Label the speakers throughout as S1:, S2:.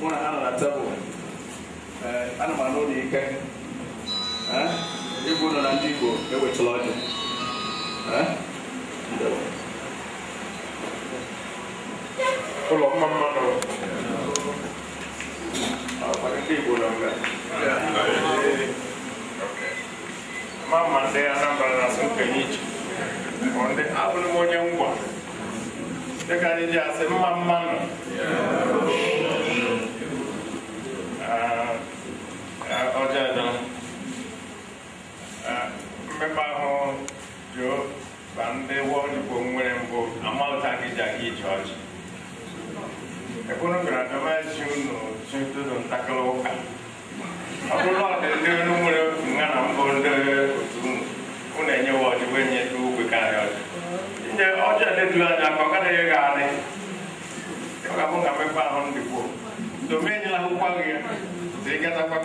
S1: muna eh, ana na tabo ana m anụ na ike igbo nọ na ndị igbo ewechila ọjị ụlọ mma mmanụ
S2: ndị igbo nọ nga ma ma ndị anambra na-asụ nkenye iche abụrụ m wọ dịka onwere mbụ amalta gị ja gị ije ọchị ekwunu gara dọmasi unu chintụdụ ntakịrị ụka ọ bụrụ ọdị ndị unu nwere nha na mbụ ndị otu unu unu enyewa ọdịwe nye dị ugwe karịa ọdị nye ọjọ edeturu anya ka ọ gadaghị gị adị ọ ga-abụ nga mmekpa ahụ ndịkwuo ya dị gatakwa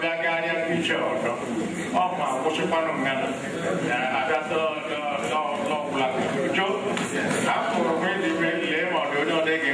S2: populace cɔ akɔrɔ mi ni mi lɛ ma do ne ya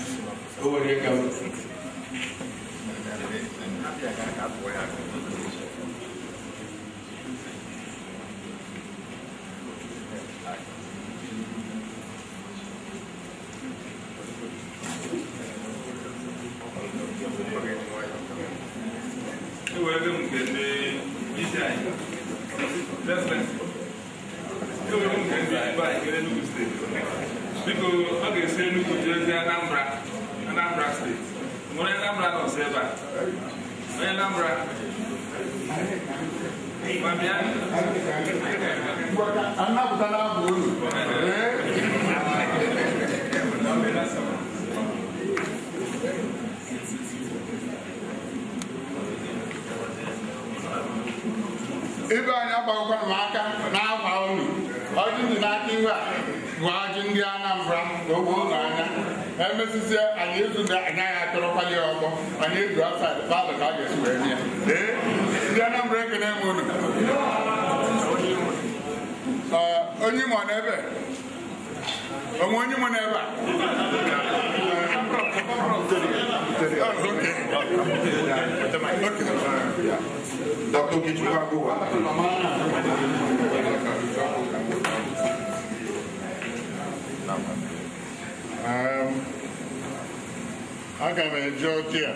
S2: Biko, a ga-esi enugwu jee mo ní lámúra náà ṣe bá mo ní lámúra mami á. anábùtá náà bò ó lò. ibe anyị agbagokwana m aka n'akwa unu ọjị ndị n'aka iwe a bụ ọjị ndị Anambra ka ogbe ụlọ emesịsị anyị ezu na anaghị atụrụkwali ya ọkpọ anyị ezu asaid palọ ka a ga-esi wee bịa ee ndị Anambra ekene m unu onye Imo n'ebe onwe onye Imo n'ebe a Dr. Kichukwu Agụwa Thank you. aga m eji a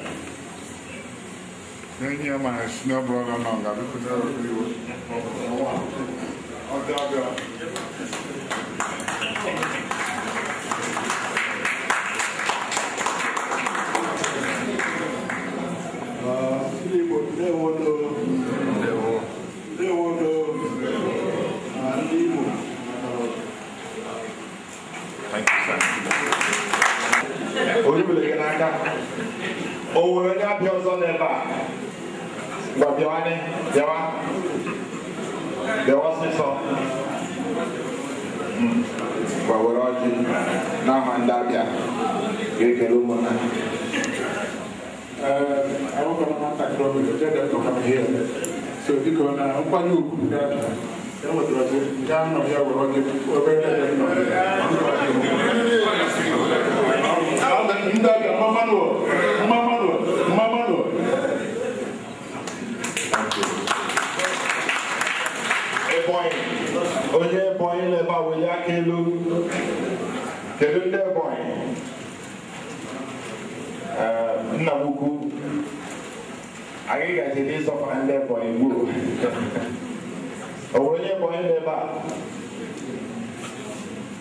S2: enyi ya mara si na ọbụrụ ọnụ ọga bipụtara iwu ọbịa ndị Igbo ndewo ndewo Thank you, sir. ibili gị n'aka o nwere onye abịa ọzọ n'ebe a ngwa bịawanị bịawa bịawa ọsịsọ ngwa were ọjị n'aha ndị abịa ga-ekele ụmụnna awụkọ nwatakịrị ọbụla jede ọkam ihe so dịka ọ na nkwanye ugwu ndị abịa e nwetara nke anọ ya were ọjị obere ebe nọ ndị ọbịa mma manuel mma manuel mma manuel ebonyi onye ebonyi na eba a weli aka elu kedu ndị ebonyi eh, nna m ukwu anyị gaji n'ịzọpụta ndị ebonyi gbuo o nwere onye ebonyi na eba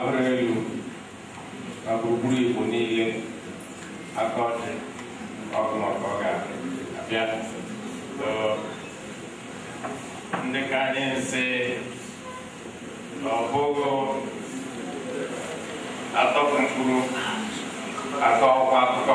S2: abụrụ elu abụrụgburu igbo niile aka ọchị ọgụ maka ọ ga-abịa ndị ka anyị nsị na ọ bụghị atọ mkpụrụ atọ ọkwa akụkọ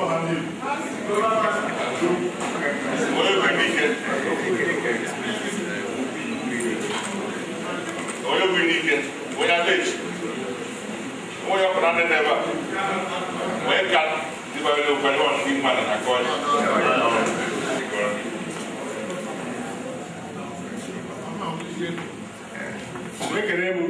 S2: onye bụ n'ike onye aleji onye ọkpụrụ adị n'ebe a onye ka dịbara n'okpere ọ ndị mmadụ na kọọ onye kere bụ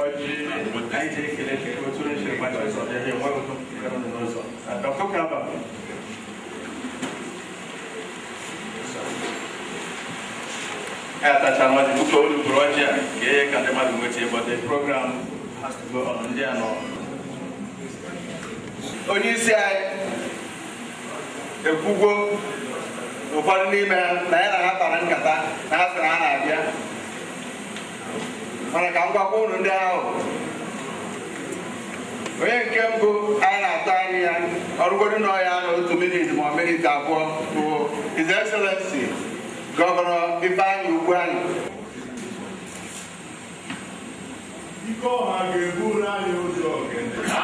S1: ai je ke le ke ko tsore shi ba da so je wa ko ka no so da ko ka ba Ata chama di kuto ulu broja ke kande ma dungo che but the program has to go on there no. Onye isi anyị ekwugo ụfọdụ n'ime na ya na ha kpara nkata na ha sị na ha na-abịa manakamka kwunu ndị ahụ onye nke mbụ a na-ata anyị ya ọrụgodu n'ọya na otu minit ma minit abụọ bụ His Excellency Gọvanọ Ifeanyị Ugwuanyị Ike ọha ga-ebu anyị ụzọ